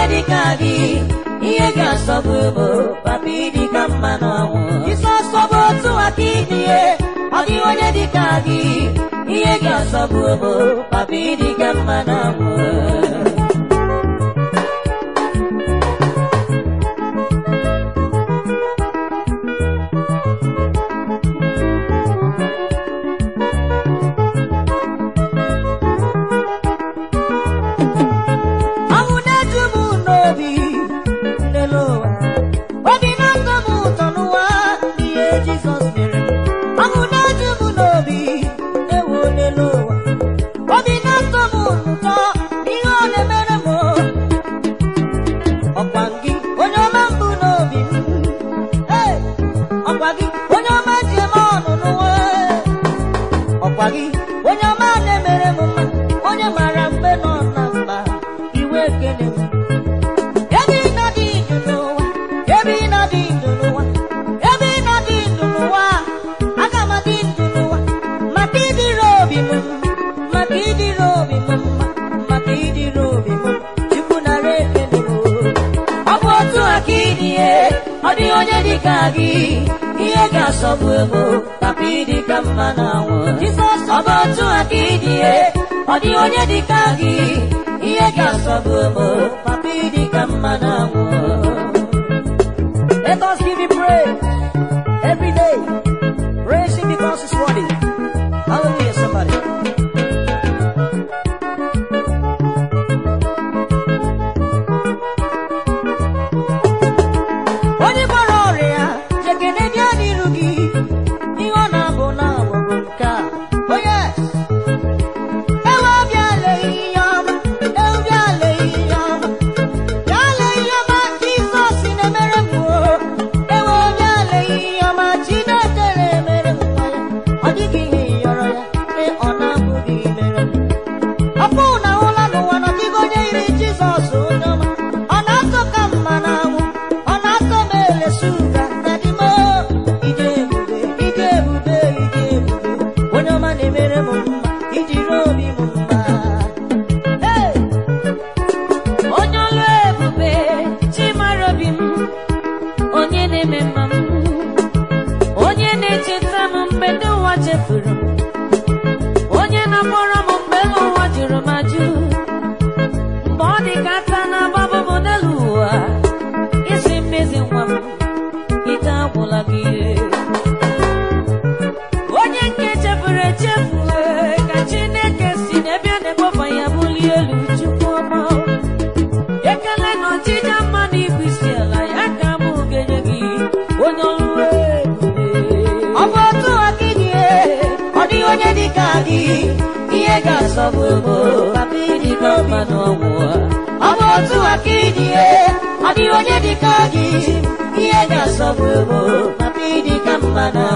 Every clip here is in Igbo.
ihe dịka gị ihe ga-asọbụ bụ papa ka mma n'ọnwụ isi ọsọbụ otu aka ihe ọ dị onye dịka gị ihe ga-asọbụ bụ papa ka mma n'ọnwụ ebe ị nọ dị ndụ n'ụwa ebe ị aga maka ịdịrị obi mma, maka ịdịrị obi mma maka ịdịrị obi ọ bụ otu aka ịdị ọ onye dị ka gị ihe ga maka ịdị ka mma bụ otu onye dị ihe ga-asọ bụ ụmụ papa ịdị ka mma na anwụ let us give him praise ọ bụ otu aka ịdị ihe ọ dị onye dịka gị ihe ga-asọgbu ebo papa ịdị ka mma na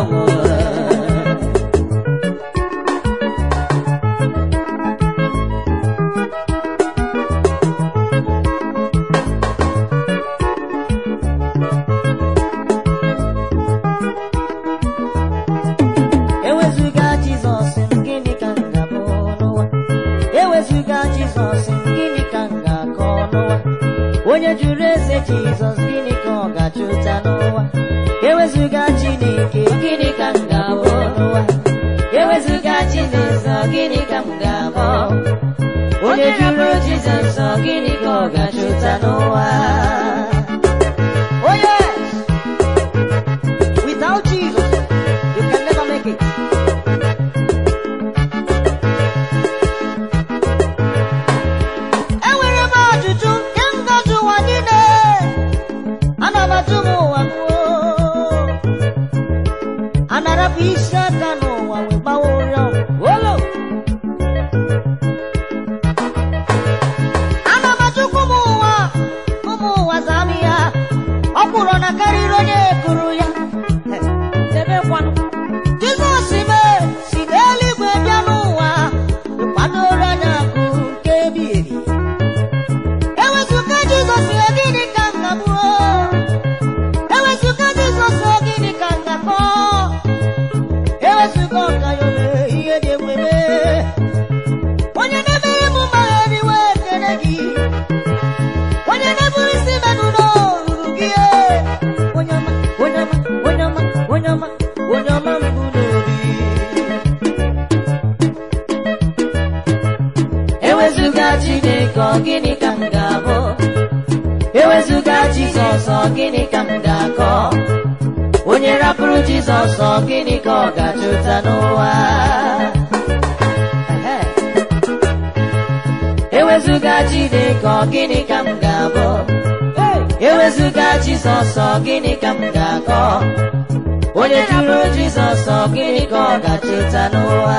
onye jụrụ eze Jizọs gịnị ka ọ ga-achụta n'ụwa ewezuga Chineke gịnị ka m ga-abụ n'ụwa e ewezuga Chineke gịnị ka m ga-abụ onye jụrụ Jizọs gịnị ka ọ ga-achụta n'ụwa gịnị ka m ga-abụ ewezụga Jizọs gịnị ka m ga-akọ onye jụrụ Jizọs gịnị ka ọ ga-acheta n'ụwa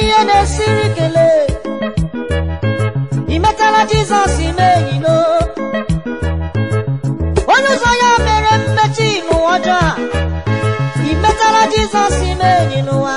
ihe na-esiri kelee imetala metala jizọs ime enyi no onye ụzọ ya mere mmechi n'ụwa ọjọọ a ị metala jizọs ime enyi n'ụwa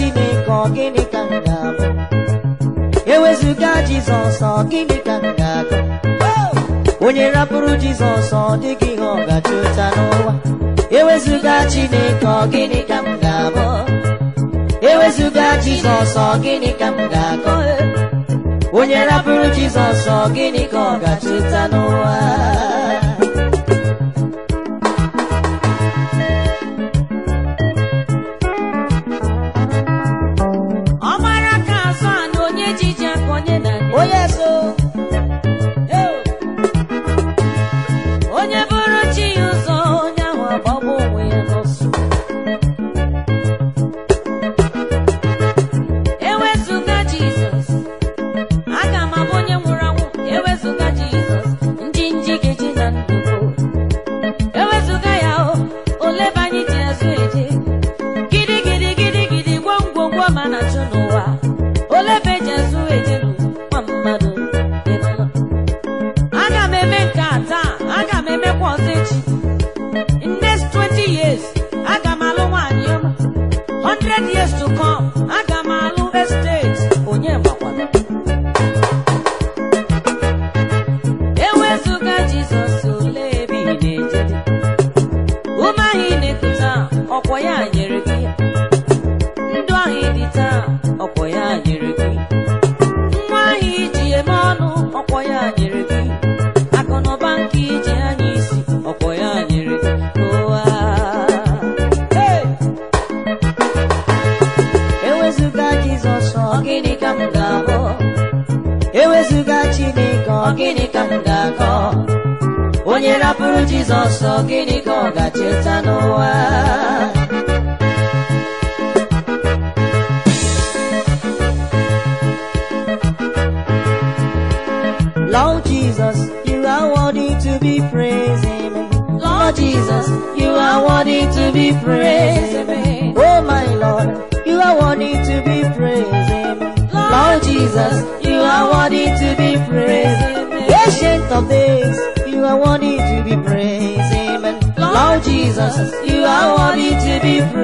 chineke ọ gịnị ka m ga-abụ ewezụga jizọs ọ gịnị ka m ga-agụ onye rapụrụ jizọs ọ dịghị ihe ọ gachụta n'ụwa ewezụga chineke ọ gịnị ka m ga-abụ ewezụga jizọs ọ gịnị ka m ga-agụ onye rapụrụ jizọs ọ gịnị ka ọ gachụta n'ụwa rapụrụ Jizọs ọsọ gịnị ka ọ ga-cheta Lord Jesus, you are worthy to be praised. Lord Jesus, you are worthy to be praised. Oh my Lord, you are worthy to be praised. Lord Jesus, you are worthy to be praised. Ancient of days, you are worthy we praise. Amen. Lord Jesus, you are worthy to be praised.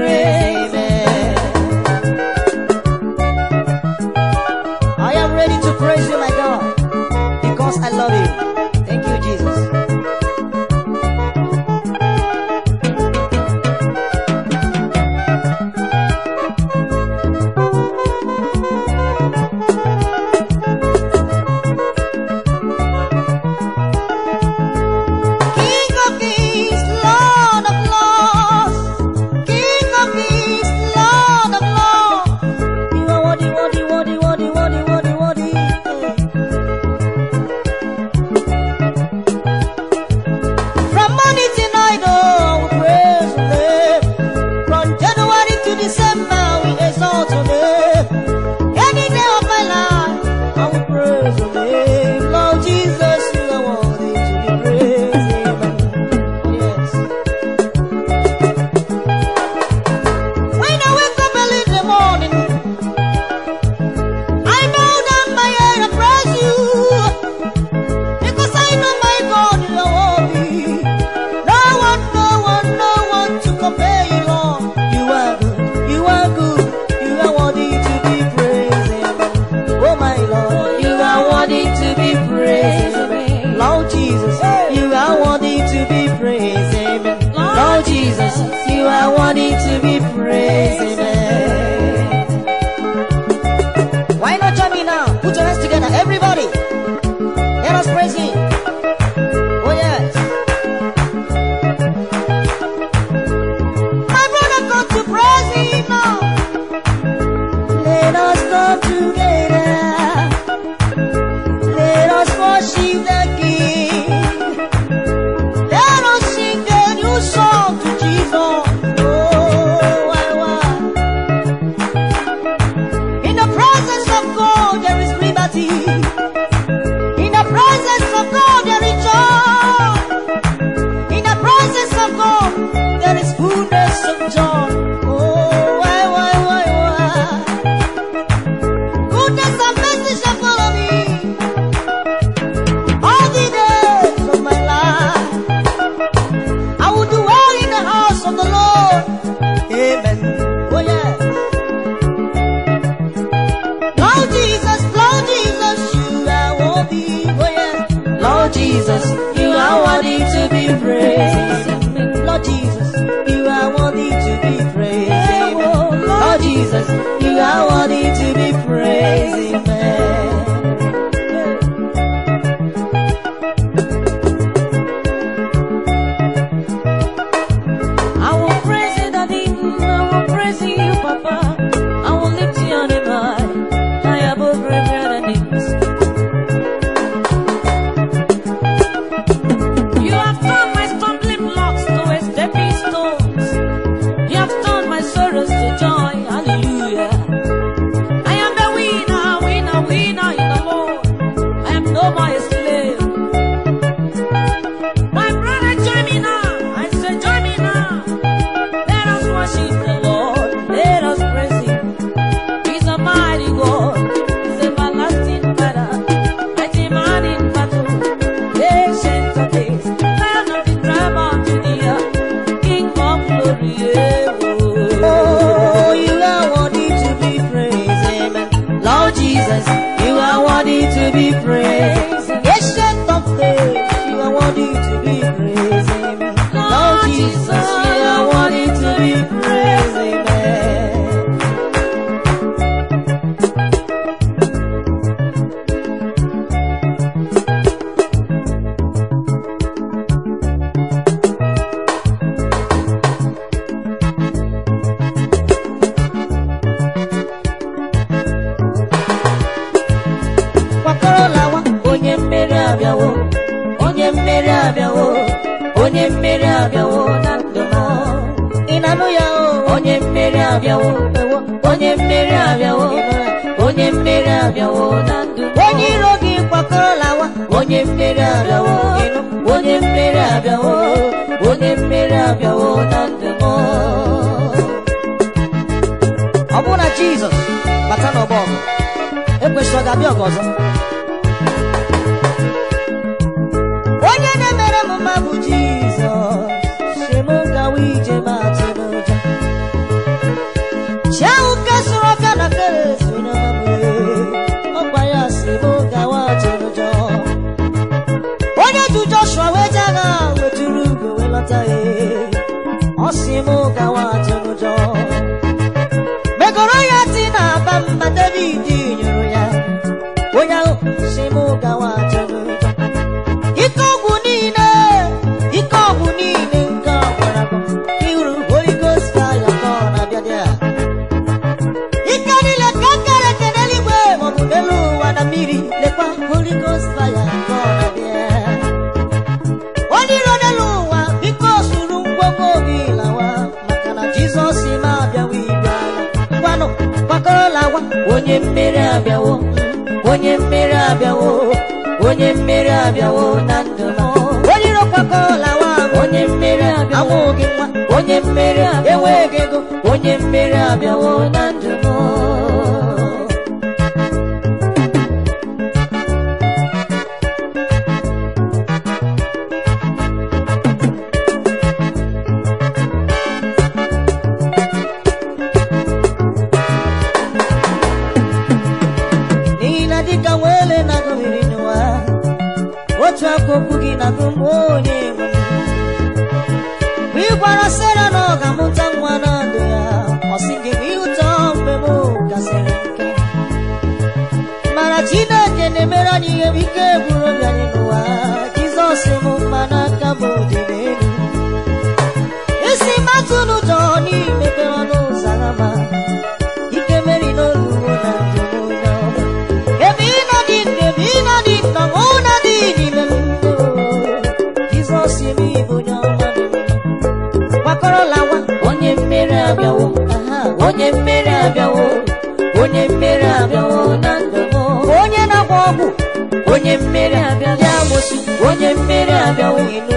Jesus, you are worthy to be praised. onye iro gị kwakọrọ lawa onye mmeri abịawo ịnụ onye mmeri abịawo onye mmeri abịawo na ndụ m ọ bụrụ na Jizọs bata n'ọgbọ ọgụ ekwesịrị ọ ga-abịa ọgụ ọzọ onye na-emere mma bụ ọ sị m gawa atụ n'ụjọ megoro ya dị na aba mma abịawo na ndụ na-abịa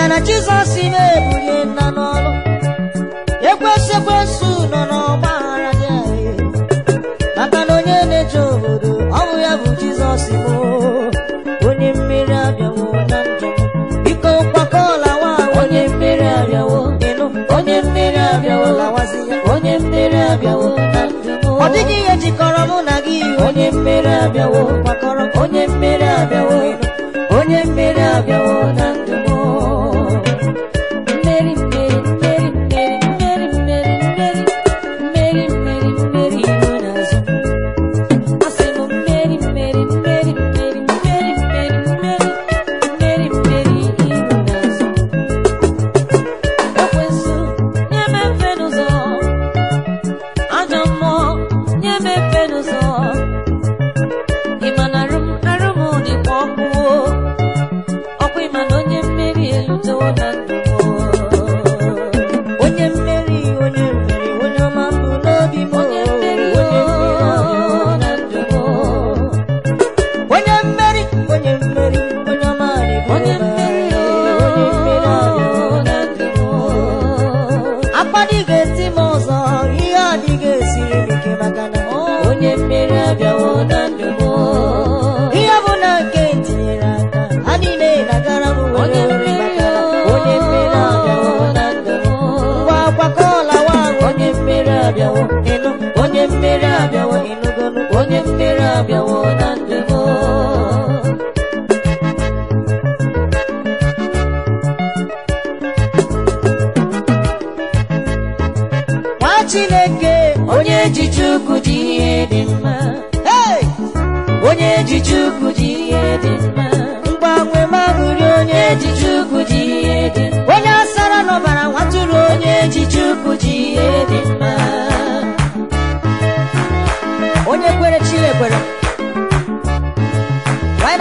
mere na Jizọs na-ebulie nna n'ọlụ ekwesị ekwesị nọ n'ọgba aghara gị maka na onye na-eje obodo ọnwụ ya bụ Jizọs bụ onye mmiri abịawo na njem biko kwakọọla nwa onye mmiri abịawo ịnụ onye mmiri abịawo lawazi onye mmiri abịawo na njem ọ dịghị ihe jikọrọ mụ na gị onye mmiri abịawo bịawo but why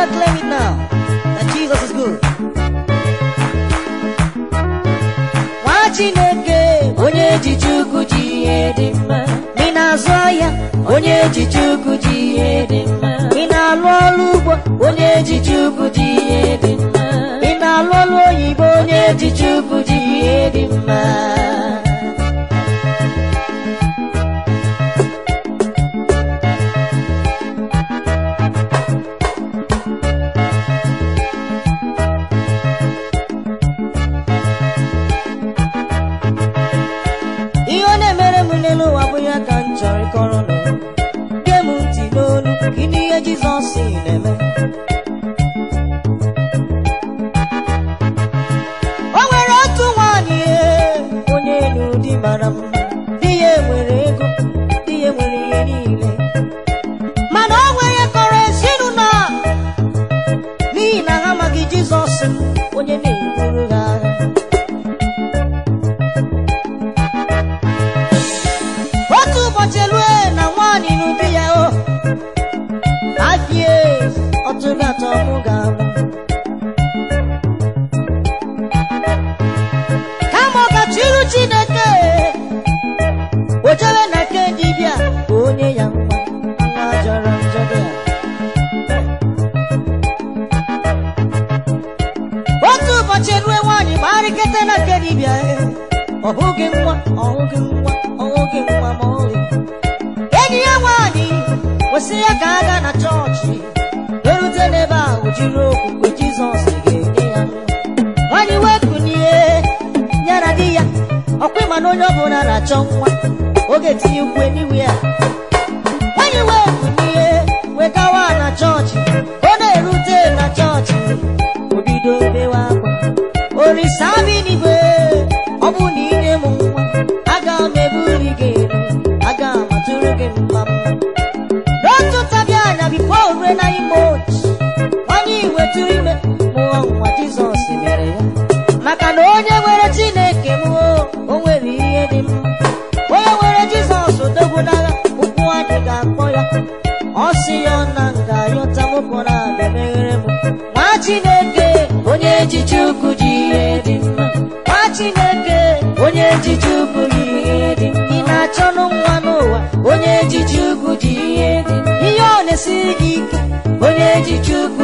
Nwa Chineke onye ji mma ị na-azụ onye ji Chukwu ji ihe dị mma ị na-alụ ọrụ ugbo onye ji mma ị na oyibo onye ji Chukwu ji ihe dị mma see nkịtị na-abịa dibịa ọ bụghị nwa ọ nwa ọ nwa ma ọlị enyi ya nwanyị kwesịrị ya ka a gaa na chọọchị erute n'ebe ahụ jiri okwukwe Jizọs ga-enye ya nwaanyị wee kunie di ya ọkwa ịma na onye bụla na-achọ nwa oge tinye ukwe n'iwe ya orisa bi n'igwe ọ bụ na dị ike onye ji chukwu